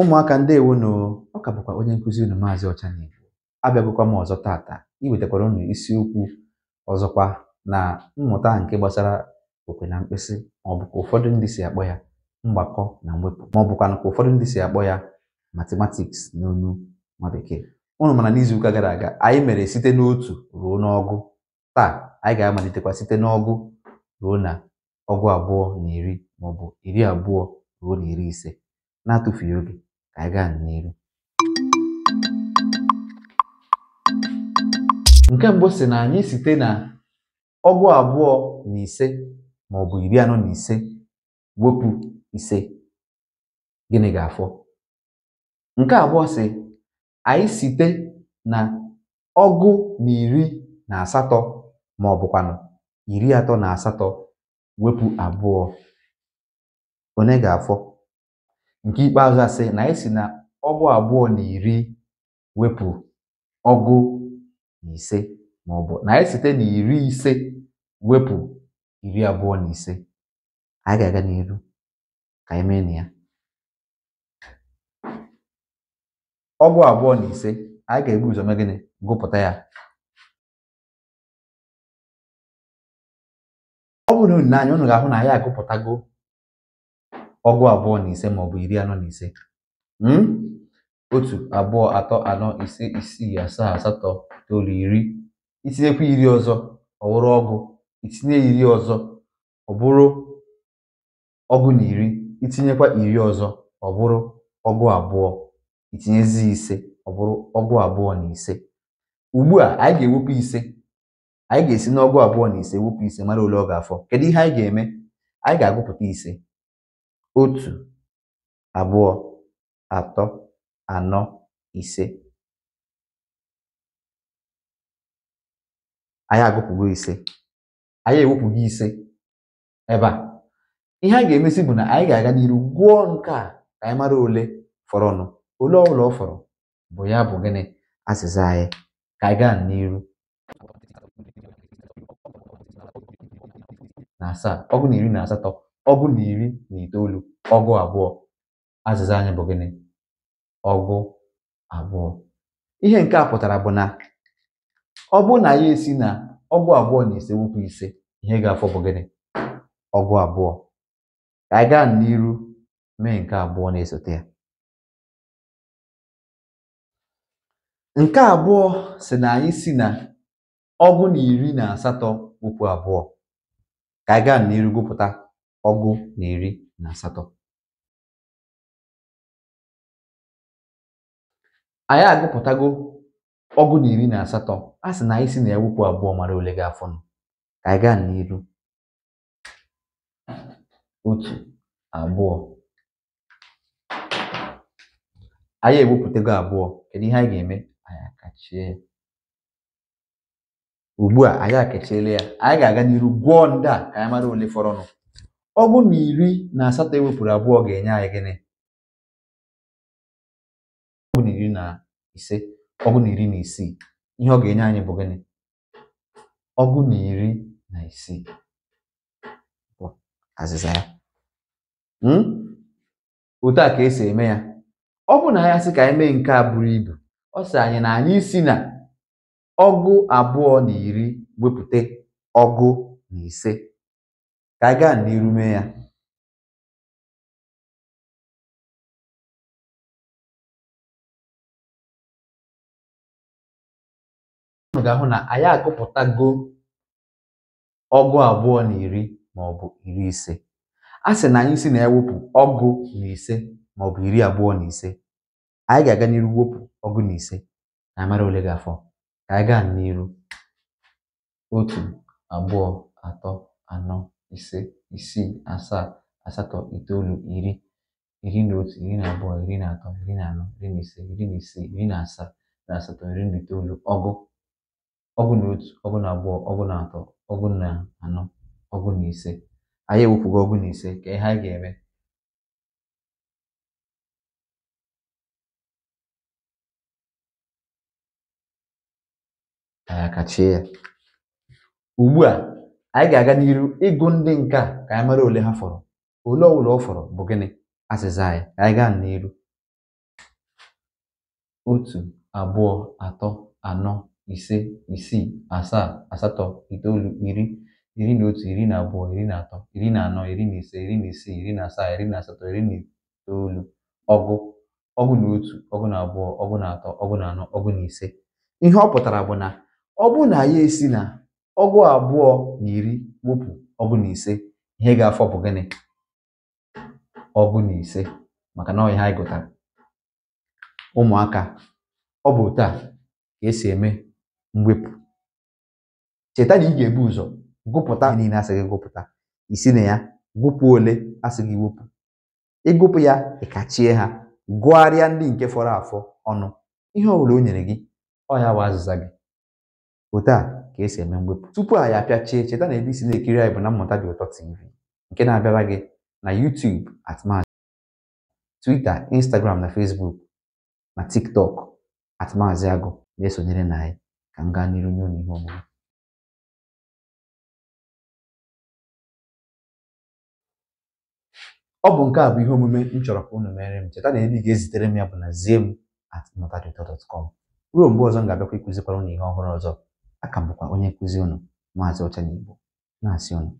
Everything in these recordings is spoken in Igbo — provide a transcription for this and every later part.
ụmụaka ndewo nụ ọ ka bụkwa onye nkụzi unu maazị ọchanigbo abịagokwa m ọzọ tata iwetakwara unu isiokwu ọzọkwa na mmụta nke gbasara okwe na mkpịsị maọbụka ụfọdụ ndị si akpọ ya mgbakọ na mwepụ maọbụkwa ka ụfọdụ ndị si akpọ ya matematiks n'onu nwa bekee ụnụ mana n'izuụka gara aga anyị mere site n'otu ruo n'ọgụ taa anyị ga-amalitekwa site n'ọgụ ruo na ọgụ abụọ na iri maọbụ iri abụọ ruo na iri ise na-atụfughị oge ka anyị nke mbụ si na anyị site na ọgụ abụọ na ise ma ọ bụ iri anọ na ise wepụ ise gịnị ga-afọ nke abụọ si anyị site na ọgụ na iri na asatọ ma ọ bụkwanụ iri atọ na asatọ wepụ abụọ onye ga-afọ nke ikpeazụ asị na anyị si na ọgụ abụọ na iri wepụ ọgụ na ise maọbụ na anyị site na iri ise wepụ iri abụọ na ise anyị ga-aga n'iru ka anyị mee na ya ọgụ abụọ na ise anyị ga-ebu ụzọ gịnị gụpụta ya ọ bụrụ na unu na-anya unu ga-ahụ na anyị agụpụtago ọgụ abụọ na ise maọbụ iri anọ na ise hmm? otu abụọ atọ anọ ise isii asaa asatọ itoolu iri itinyekwa iri ọzọ ọ bụrụ ọgụ itinye iri ọzọ ọ bụrụ ọgụ na iri itinyekwa iri ọzọ ọ bụrụ ọgụ abụọ itinyezi ise ọ bụrụ ọgụ abụọ na ise ugbu a anyị ga-ewepụ ise anyị ga-esi n'ọgụ abụọ na ise wepụ ise mara ole ọ ga-afọ kedu ihe anyị ga-eme anyị ga-agụpụta ise otu, abụọ, atọ, anọ, ise. Anyị agụpụgo ise. Anyị ewepụgo ise ebe a. Ihe a ga-emesi bụ na anyị ga-aga n'iru gụọ nke a ka anyị mara ole fọrọnụ. Ole ọbụla ọ fọrọ bụ ya bụ gịnị azịza anyị ka anyị gaa n'iru na asaa ọgụ na iri na asatọ ọgụ na iri na itoolu ọgụ abụọ azịza anyị bụ gịnị ọgụ abụọ ihe nke a pụtara bụ na ọ bụ na ya esi na ọgụ abụọ na ise ukwu ise ihe ga-afọ bụ gịnị ọgụ abụọ ka anyị gaa n'iru mee nke abụọ na-esote ya nke abụọ si na anyị si na ọgụ na iri na asatọ wụpụ abụọ ka anyị gaa n'iru gụpụta ọgụ na iri na asatọ anyị agụpụtago ọgụ na iri na asatọ a sị na anyị si na ya abụọ mara ole ga-afọ nụ ka anyị gaa n'iru otu abụọ anyị ewepụtago abụọ kedu ihe anyị ga-eme anyị akachie ya ugbu a anyị akachiela ya anyị ga-aga n'iru gwọọ ndị a ka anyị mara ole fọrọnụ ọ bụrụ na iri na asatọ ewepụrụ abụọ ga-enye anyị gịnị ọ bụ na iri na ise ọ bụ na iri na isii ihe ọ ga-enye anyị bụ gịnị ọgụ na iri na isii bụ azịza ya hmm? otu a ka esi eme ya ọ bụ na ya sị ka anyị mee nke a buru ibu ọ sị anyị na anyị si na ọgụ abụọ na iri wepụta ọgụ na ise ka anyị gaa mee ya unu ga-ahụ na anyị agụpụtago ọgụ abụọ na iri maọbụ iri ise a sị na anyị si na ewepụ ọgụ na ise maọbụ iri abụọ na ise anyị ga-aga n'iru wepụ ọgụ na ise na amara ole ga-afọ ka anyị gaa n'iru otu abụọ atọ anọ ise, isii, asaa, asatọ, itoolu, iri, iri na otu, iri na abụọ, iri na atọ, iri na anọ, iri na ise, iri na ise iri na asaa, na asatọ, iri na itoolu, ọgụ, ọgụ na otu, ọgụ na abụọ, ọgụ na atọ, ọgụ na anọ, ọgụ na ise. Anyị ewepụgo ọgụ na ise, ka ihe anyị ga-eme. ya. Ugbu a anyị ga-aga n'iru ịgụ ndị nke a ka anyị mara ole ha fọrọ ole ọbụla ọ fọrọ bụ gịnị azịza anyị ka anyị gaa n'iru otu abụọ atọ anọ ise isii asaa asatọ itoolu iri iri na otu iri na abụọ iri na atọ iri na anọ iri na ise iri na isii iri na asaa iri na asatọ iri na itoolu ọgụ ọgụ na otu ọgụ na abụọ ọgụ na atọ ọgụ na anọ ọgụ na ise ihe ọ pụtara bụ na ọ bụ na ya esi na ọgụ abụọ na iri wepụ ọgụ na ise ihe ga-afọ bụ gịnị ọgụ na ise maka na ọhịa anyị gụtara ụmụaka ọ bụ otu a ka esi eme mwepụ cheta na ị ga-ebu ụzọ gụpụta niile asị gị gụpụta isi na ya gụpụ ole asị gị wepụ ịgụpụ ya ịkachie ha gụgharịa ndị nke fọrọ afọ ọnụ ihe ọ bụla o nyere gị ọ ya bụ azịza gị otu a ka esi eme mwepụ tupu anyị apịachie cheta na ebe isi na-ekiri anyị bụ na mmụta dị ụtọ tv nke na-abịara gị na YouTube at Maazị Twitter Instagram na Facebook na TikTok at Maazị Agụ na-esonyere na anyị ka m gaa n'iru nye ụnụ ihe omume ọ bụ nke a bụ ihe omume m chọrọ ka unu mere m cheta na ebe ị ga-ezitere m ya bụ na ziem at ụtọ dọt kọm ruo mgbe ọzọ m ga-abịakwa ịkụzikwara na ihe ọhụrụ ọzọ aka bụkwa onye nkụzi unu maazị Ọchaniigbo na-asị unu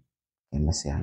emesịa